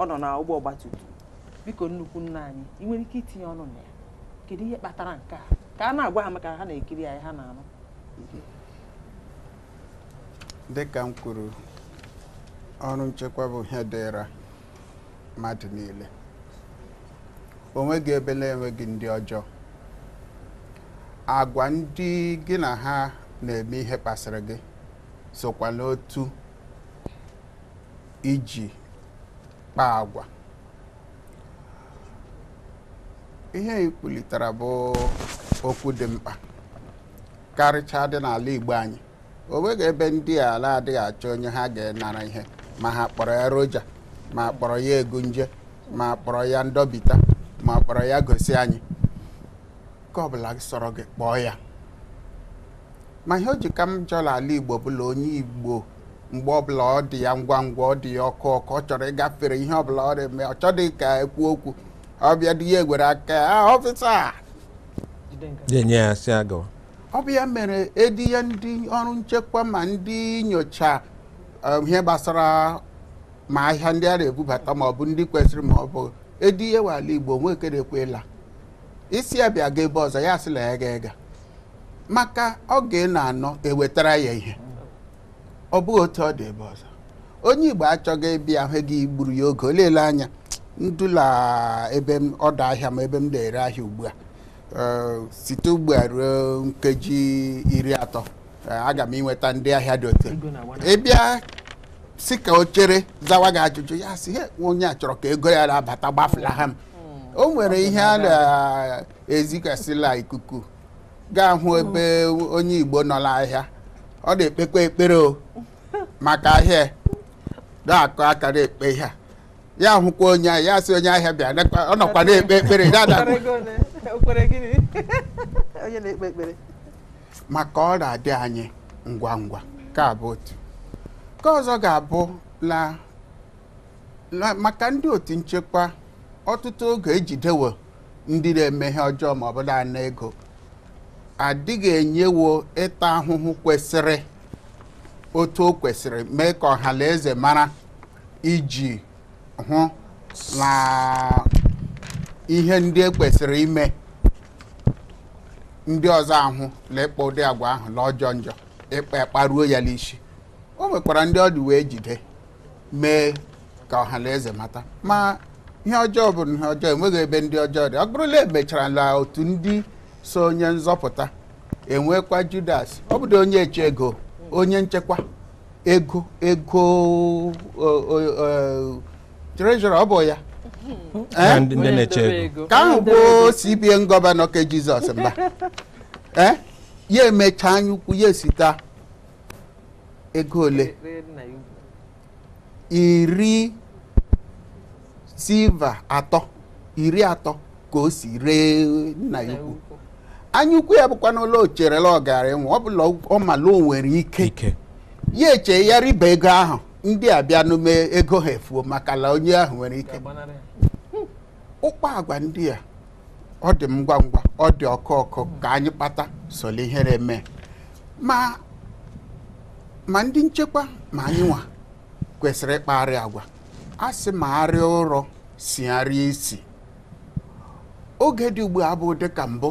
S1: ọ nọ na ụgbọ ọgbatumtum biko nnukwu nna anyị ị nwere ike itinye ọnụ na ya kedu ihe kpatara nke a ka a na-agwa maka ha na-ekiri anyị ha
S7: na-anụ
S5: dịka m kwuru ọrụ nchekwa bụ ihe dịra mmadụ niile o nweghị ebe na-enweghị ndị ọjọọ agwa ndị gị na ha na-eme ihe kpasịrị gị sokwa n'otu iji kpaa agwa ihe ị bụ okwu dị mkpa karịchaa dị n'ala Igbo anyị o nweghị ebe ndị ala adịghị achọ onye ha ga-enara ihe ma ha kpọrọ ya roja ma kpọrọ ya egunje ma kpọrọ ya ndọbita ma kpọrọ ya gosi anyị ka ọbụla sọrọ gị kpọọ ya ma ihe o ji ka m jọla ala Igbo bụla onye Igbo mgbe ọbụla ọ dị ya ngwa ngwa ọ dị ya ọkụ ọkụ ọ chọrọ ịgafere ihe ọbụla ọ dị ọ chọdị ka ekwu okwu ọbịa dị ya egwere aka ọfịsa enye ya si ọbịa mere edi ya ndị ọrụ nchekwa ma ndị nyocha ihe gbasara ma ahịa ndị a na-ebubata ma ọ bụ ndị kwesịrị ma ọ bụ edi ya wala igbo na-ekwela. isi ya bịa ga ebe ọzọ ya sịla ya ga ega maka oge na anọ ewetara ya ihe ọ bụghị otu ọ dị ebe ọzọ onye igbo achọghị ịbịa ahụ gị gburu ya oge o anya ndụla ebe m ọdọ ahịa m ebe m na-ere ahịa ugbu a eh, site ugbu a ruo nkeji iri atọ eh, aga m inweta ndị ahịa dị otu ịbịa si ka o chere zawa gị ajụjụ ya si onye a chọrọ ka ego ya na-abata gbafulaha m hmm. o nwere ihe a na-ezigasịla ikuku gaa hụ ebe onye Igbo nọ n'ahịa ọ na-ekpekwa ekpere o *laughs* maka ahịa na-akụ akara ekpe ihe a ya hụkwa onye ahịa ya si onye ahịa bịa ọ nọkwa *laughs* na-ekpe ekpere maka ọ na-adị anyị ngwa ngwa ka abụ otu ka ọzọ ga-abụ na maka ndị otu nchekwa ọtụtụ oge ejidewo ndị na-eme ihe ọjọọ ma ọ bụ ego adịghị enyewo ịta ahụhụ kwesịrị otu o kwesịrị mee ka ọha na eze mara iji hụ na ihe ndị e kwesịrị ime ndị ọzọ ahụ na ịkpọ ụdị agwa ahụ na ọjọọ njọ ịkpa e ekparuo ya n'isi o nwekwara ndị ọ dị wee jide mee ka ọhanaeze mata ma ihe ọjọọ bụ ihe ọjọọ enweghị ebe ndị ọjọọ dị ọ bụrụla emechara na e otu ndị so onye nzọpụta enwekwa judas ọ bụdo onye eche ego onye nchekwa ego ego trejọra ọ bụ ya ka ahụ bụ CBN gọvanọ ke Jizọs mba eh? ya emecha anya ukwu ya esita ego ole iri silva atọ iri atọ ka o si ree nna ya ukwu anya ukwu ya bụkwa n'ụlọ ocherela ọgara enwe ọ bụla ọ mala o nwere ike ya eche ya riba ego ahụ ndị a bịa n'ume ego ha efuo maka onye ahụ nwere ike ụkpa agwa ndị a ọ dị ngwa ngwa ọ dị ọkụ ọkụ ka anyị kpata soli ihere mee ma ndị nchekwa ma anyị nwa kwesịrị ịkpagharị agwa a sị ma arịa ụrọ si isi oge dị ugbu a bụ dịka mbụ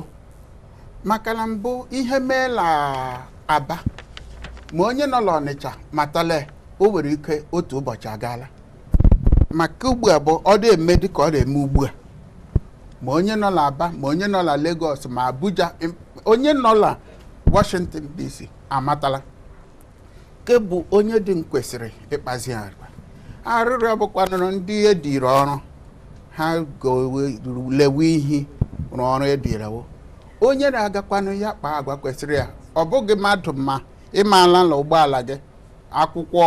S5: maka mbụ ihe meela aba ma onye nọ n'Ọnịcha matala o nwere ike otu ụbọchị agaala maka ugbu a bụ ọ dị eme dị ka ọ na-eme ugbu a ma onye nọla Aba ma onye nọla legos Lagos ma Abuja onye nọla Washington DC amatala ke bụ onye dị kwesịrị ịkpazi agwa arịrịọ bụkwanụrụ ndị ediri ọrụ ha golewe ihe rụọ ọrụ edirawo onye na-agakwanụ ya kpaa agwa kwesịrị ya ọ bụghị mmadụ ma ịmaala na ụgbọala gị akwụkwọ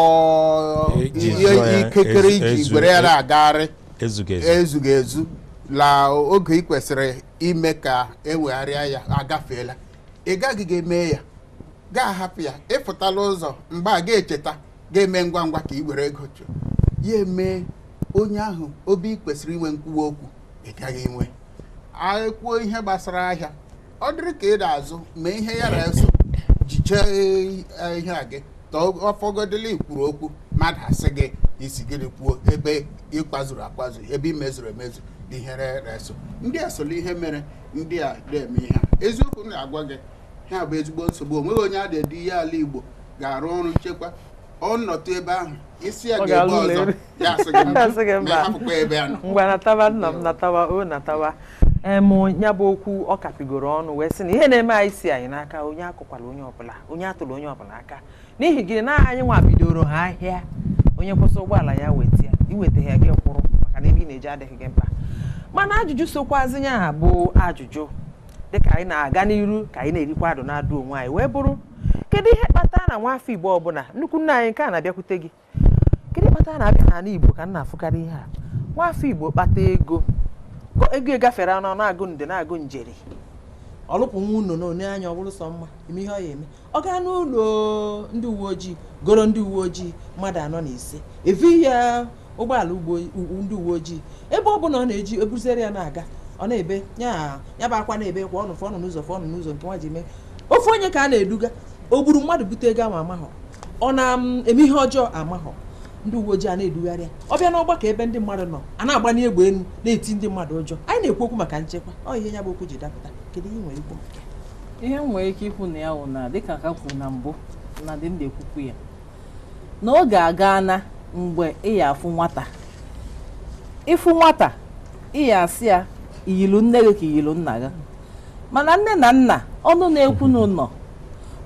S5: e ihe ikekere e iji were ya e na-agagharị ezughị ezu la oge ị kwesịrị ime ka ewegharịa ya agafeela ị gaghị ga-eme ya gaa hapụ ya ịpụtala ụzọ mgbe a ga-echeta ga-eme ngwa ngwa ka ị were ego chụọ ya eme onye ahụ obi kwesịrị inwe nkwuwa okwu ị gaghị inwe ekwuo ihe gbasara ahịa ọ dịrị ka ị da azụ ma ihe ya na-eso jichee eh, ihe a gị ọfọgodele ikwuru okwu mmadụ asị gị isi gịnị kwuo ebe ịkpazuru akpazu ebe imezuru emezu dịhere reso ndị a solo ihe mere ndị a na-eme ihe eziokwu na-agwa gị ha bụ ezigbo nsogbu onweghị onye a na ihe ala Igbo ga-arụ ọrụ nchekwa ọnọtụ ebe ahụ isi ya ga-ebe ọzọ *laughs* ya asị gị mba hapụkwa
S1: ebe a nọ natawa nna m natawa o natawa em ya bụ okwu ọ kapigoro ọnụ wee sị na ihe na-eme anyị si anyị n'aka onye akụkwala onye ọbụla onye atụrụ onye ọbụla aka n'ihi gị na anyị nwa bidoro ha ahịa onye kwụsị ụgbọala ya weta ya iweta gị kwụrụ maka na ebe ị na-eji adịghị gị mkpa mana ajụjụ sokwazi ya bụ ajụjụ dịka anyị na-aga n'iru ka anyị na-erikwa adụ na-adụ onwe anyị wee bụrụ kedu ihe kpata na nwa afọ igbo ọbụla nnukwu nna anyị nke a na-abịakwute gị kedu kpatara na-abịa n'ala igbo ka na-afụkarị ihe a nwa afọ igbo kpata ego ego egafere anụ na-agụ nde na-agụ njeri ọlụpụ nwa unu na onye anya ọ bụrụ sọ mma ihe ọ ya eme ọ gaa n'ụlọ ndị uwe ojii goro ndị uwe ojii mmadụ anọ na ise evi ya ụgbọala ndị uwe ojii ebe ọ bụla ọ na-eji ebuzere ya na-aga ọ na-ebe ya bụ akwa na-ebe kwa ọnụ fọnụ n'ụzọ fọnụ n'ụzọ nke nwa ji mee ofe onye ka a na-eduga o gburu mmadụ bute ego ma amahọ ọ na-eme ihe ọjọọ amahọ ndị uwe ojii a na-edugharị ya ọ bịa n'ọgbakọ ebe ndị mmadụ nọ a na-agbanye egbe elu na-eti ndị mmadụ ụjọ anyị na-ekwu okwu
S7: maka nchekwa ọ ihe ya bụ okwu ji dapụta kedu ihe nwere ikwu ihe m nwere ike ikwu na ya wụ na dịka ka kwuru na mbụ na dị m na-ekwukwu ya na ọ ga-aga na mgbe ị ya afụ nwata ịfụ nwata ị ya asị ya iyilu nne gị ka iyilu nna gị mana nne na nna ọnụ na-ekwu n'ụlọ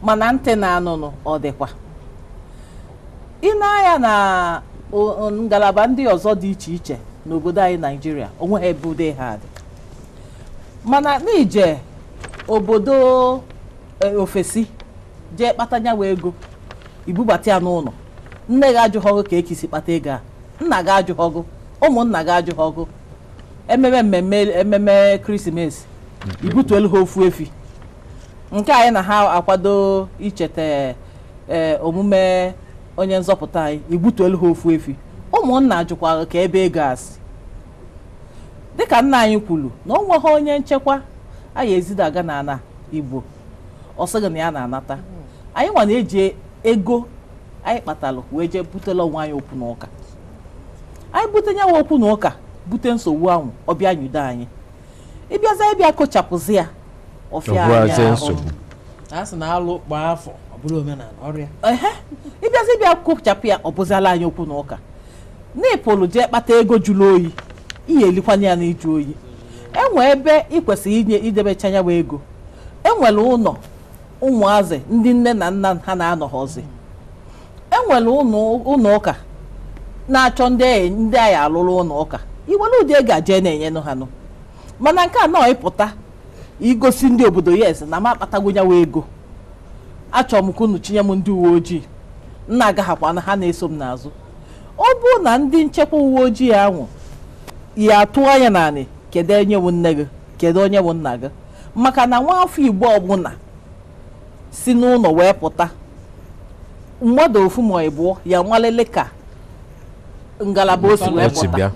S7: mana ntị na-anụnụ ọ dịkwa ị na-anya na ngalaba ndị ọzọ dị iche iche n'obodo anyị naijiria onwe ebe ude ha dị mana n'ije obodo eh, ofesi jee kpata nyawa ego ibubata ya n'ụlọ nne gị ajụghị ka ekisi kpata ego a nna gị ajụghị ọgụ ụmụnna gị ajụghị ememe mmemme ememe krismesi mm-hmm. ibutuelu ha ofu efi nke anyị na ha akwado icheta eh, omume onye nzọpụta anyị igbutuelu ha ofu efi ụmụnna jụkwara ka ebe ego asị dịka nna anyị kwuru na o nweghị onye nchekwa anyị ezidaga na igbo ọ sịghị ya na-anata anyị nwa na-eji ego anyị kpatalụ wee jee butela onwe anyị okwu n'ụka anyị bute nyanwa okwu n'ụka bute nsogbu ahụ ọbịa nyudo anyị ịbịaza ịbịa kochapụzi ya ọfịa ịbịa kochapụ ya ọ bụziala anyị okwu n'ụka na ịpụlụ jee kpata ego jụrụ oyi ihe elikwana ya iju oyi enwe ebe ị kwesịrị inye idebecha ya nwa ego enwere ụlọ ụmụazị ndị nne na nna ha na-anọghọzi enwere ụlọ ụka na-achọ ndị e, ndị anyị alụrụ ụlọ ụka iwere ụdị ego aje na-enyenụ ha nụ mana nke a nọ ịpụta igosi ndị obodo yes na m akpatago nyawa ego achọrọ m ka unu chinye m ndị uwe ojii nna agaghakwana ha na-eso m n'azụ ọ bụrụ na ndị nchekwa uwe ojii ahụ ya atụ anya n'anị kedu onye bụ nne gị kedu onye bụ nna gị maka na nwa afọ igbo ọbụla si n'ụlọ wee pụta mmadụ ofu ma ịbụọ ya nwalele ka ngalaba o si wee pụta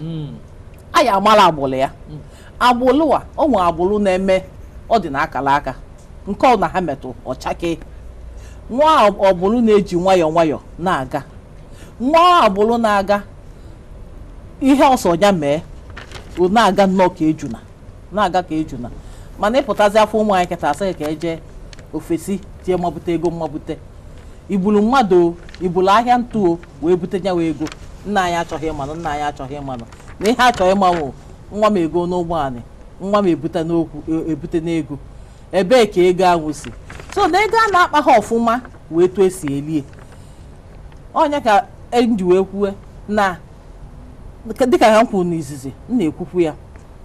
S7: a ya amala agbụlụ ya agbụlụ a ọ nwe agbụlụ na-eme ọ dị na aka nke ọ na ha metụ ọchake nwa ọbụlụ na-eji nwayọọ nwayọọ na-aga nwa agbụlụ na-aga ihe ọsọ ya mee na-aga nnọọ ka ejuna na-aga ka ejuna mana ịpụtazi afọ ụmụ anyị kịta asịghị ka e jee ofesi tie mmabute ego mmabute ibulu mmadụ ibulu ahịa ntụ wee bute nyawa ego nna anyị achọghị ịmanụ nna anyị achọghị ịmanụ na ihe achọghị ịmanwụ nwa m ego n'ụgbọ nwa m ebute n'okwu e, ebute n'ego ebee ka ego ahụ si so na ego a na-akpa ha ọfụma wee tụọ esi elie onye ka eji wee kwue na dịka ha kwuru n'izizi m na-ekwukwu ya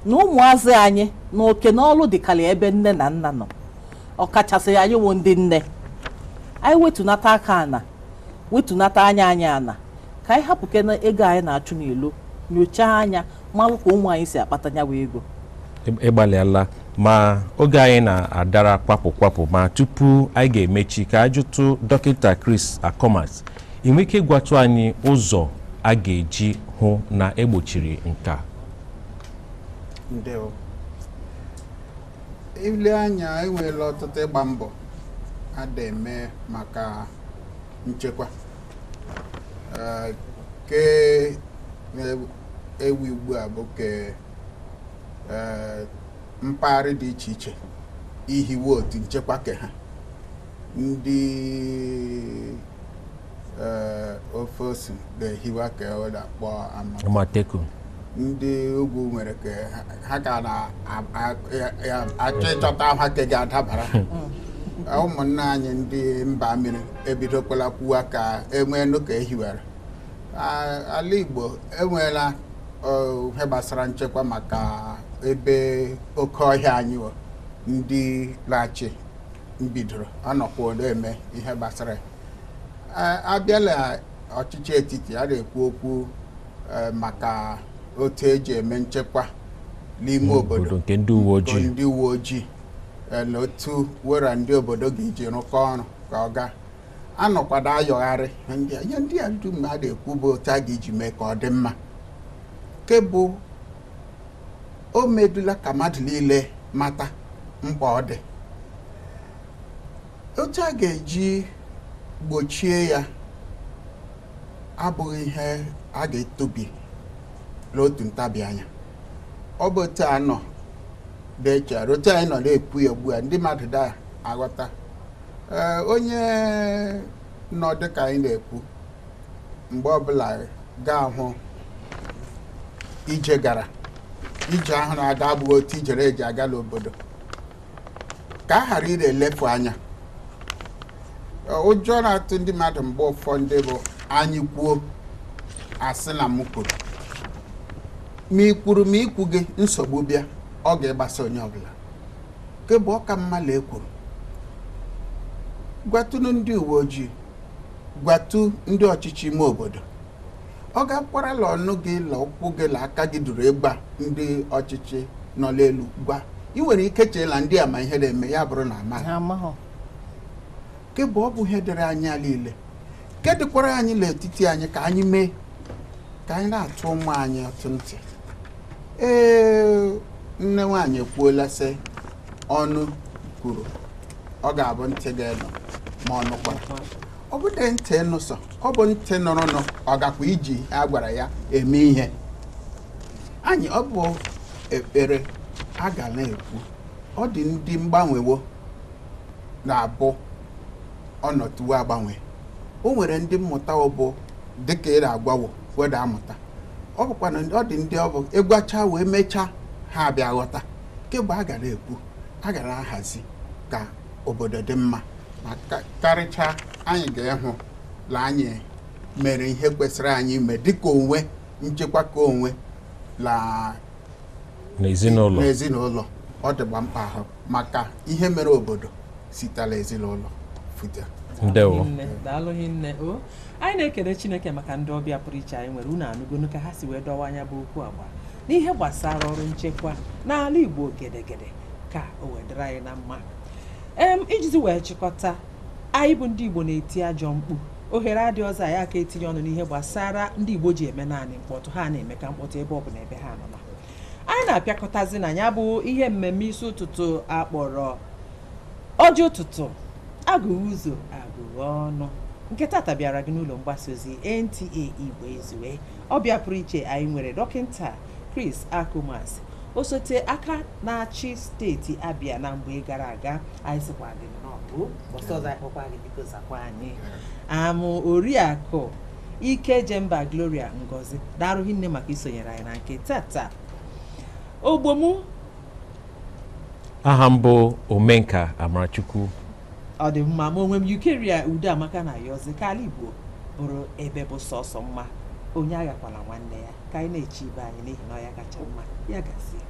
S7: na ụmụazị anyị na oke n'ọlụ dịkarị ebe nne na nna nọ ọkachasị anyị wụ ndị nne anyị wetụnata aka ana wetunata anya anyị ana ka anyị hapụke na ego anyị na-achụ n'elu nyochaa anya malụ ka ụmụ anyị si akpatanyawa ego
S2: ịgbalịala ma oge anyị na-adara kwapụ kwapụ ma tupu anyị ga-emechi ka ajụtụ dọkịta Chris Akomas ị nwere ike ịgwatụ anyị ụzọ a ga-eji hụ na egbochiri nke a
S5: ile anya enweela ọtụtụ ịgba mbọ a da eme maka nchekwa ah, ke ewu ugbu a bụ ke eh, mpaghara dị iche iche ihiwe otu nchekwa ke ha ndị Eh, ofe osu na ehiwa ka ọ e akpọ amateku ndị ugwu nwere ka ha ga na-achọ ịchọta ha ka e ga-adabara *laughs* hmm. eh, ụmụnna anyị ndị mba mmiri ebidokwala kwuwa ka enwee n'ụka ehiwere ala Igbo enweela ihe gbasara nchekwa maka ebe oke ọhịa anyị ndị lachi mbidoro anọkwa ole eme ihe gbasara ya abịa na ọchịchị etiti a na-ekwu okwu e, maka otu eji eme nchekwa n'ime hmm, obodo nke ndị uwe ojii e, na otu wera ndị obodo ga-eji rụkọ ọrụ ka ọ gaa anọkwado ayọgharị ihe ndị a ndị a na-ekwu bụ otu a ga-eji mee ka ọ dị mma nke bụ o medula ka mmadụ niile mata mkpa ọ dị otu a ga-eji gbochie ya abụghị ihe a ga-etobi n'otu ntabi anya ọ bụ otu a nọ otu anyị nọ na-ekwu ya ugbu a ndị mmadụ daa aghọta onye nọ dịka anyị na-ekwu mgbe ọbụla gaa hụ ije gara ije ahụ na-aga abụghị otu ijere eji aga n'obodo ka a ghara ire elefu anya Eh, ụjọ na-atụ ndị mmadụ mgbe ụfọdụ bụ anyị kwuo asị na m kwuru ma ị kwuru ma ikwu gị nsogbu bịa ọ ga-agbasa onye ọbụla nke bụ ọka mmalụ ekwuru gwatụnụ ndị uwe ojii gwatu ndị ọchịchị ime obodo ọ ga-akwarala ọnụ gị la ụkwụ gị la aka gị duru ịgba ndị ọchịchị nọ n'elu gwa ị nwere ike cheela ndị a ma ihe na-eme ya bụrụ na amaghị kebụ ọ bụ ihe dịrị anyị niile nke dịkwara anyị n'etiti anyị ka anyị mee ka anyị na-atụ ụmụ anyị atụ ntị ee nne nwaanyị ekwuola sị ọnụ kwuru ọ ga-abụ ntị ga-enọ ma ọ kwara ọ bụdị ntị nụsọ sọ ọ bụ ntị nọrọ nụ ọ gakwa iji a gwara ya eme ihe anyị ọ bụ ekpere a ga na-ekwu ọ dị ndị mgbanwewo na-abụ ọnọtuwe agbanwe o nwere ndị mmụta ọbụ dịka ị na-agbawo weda amụta ọ bụkwa na ọ dị ndị ọbụ ịgwacha e wee mechaa ha bịa ghọta kemgbe a gara ekwu agara gara ahazi ka obodo dị mma ma karịchaa anyị ga ịhụ la anyị mere ihe kwesịrị anyị ime dịka onwe nchekwa ka onwe
S2: n'ezinụlọ
S5: ọ dịgba mkpa ahụ maka ihe mere obodo sitela ezinụlọ pụta
S2: ndewo
S1: daalụ nne o anyị na-ekele chineke maka ndị ọbịa pụrụ iche anyị nwere unu anụgonu ka ha si wee dọwa anya bụ okwu agba n'ihe gbasara ọrụ nchekwa n'ala igbo gedegede ka o wedara anyị na mma ijizi wee chịkọta anyị bụ ndị igbo na-eti ajọ mkpu ohere adị ọzọ anyị aka etinye ọnụ n'ihe gbasara ndị igbo ji eme naanị mkpọtụ ha na-eme ka mkpọtụ ebe ọ bụla ebe ha nọ anyị na-apịakọtazi na ya bụ ihe mmemme isi ụtụtụ akpọrọ ọjị ụtụtụ agụ ụzọ agụghị ọnụ nke tata bịara gị n'ụlọ mgbasa ozi NTA Igbo Ezue ọ bịa pụrụ iche anyị nwere dọkịta Chris Akumas osote aka na-achị steeti Abia na mgbe gara aga anyị sịkwa gị n'ọbụ ọsọ ọzọ akpọkwa gị biko zakwa anyị amụ oriakụ ike jemba gloria ngozi darụghị nne maka isonyere anyị na nke tata ogbomu
S2: aha mbụ omenka amarachukwu
S1: ọ dị mma ma onwe m yukeria udo amaka na yozi ka ala igbo bụrụ ebe bụ sọsọ mma onye aghakwala nwanne ya ka anyị na-eche ibe anyị n'ihi na ọ ya kacha mma ya gazie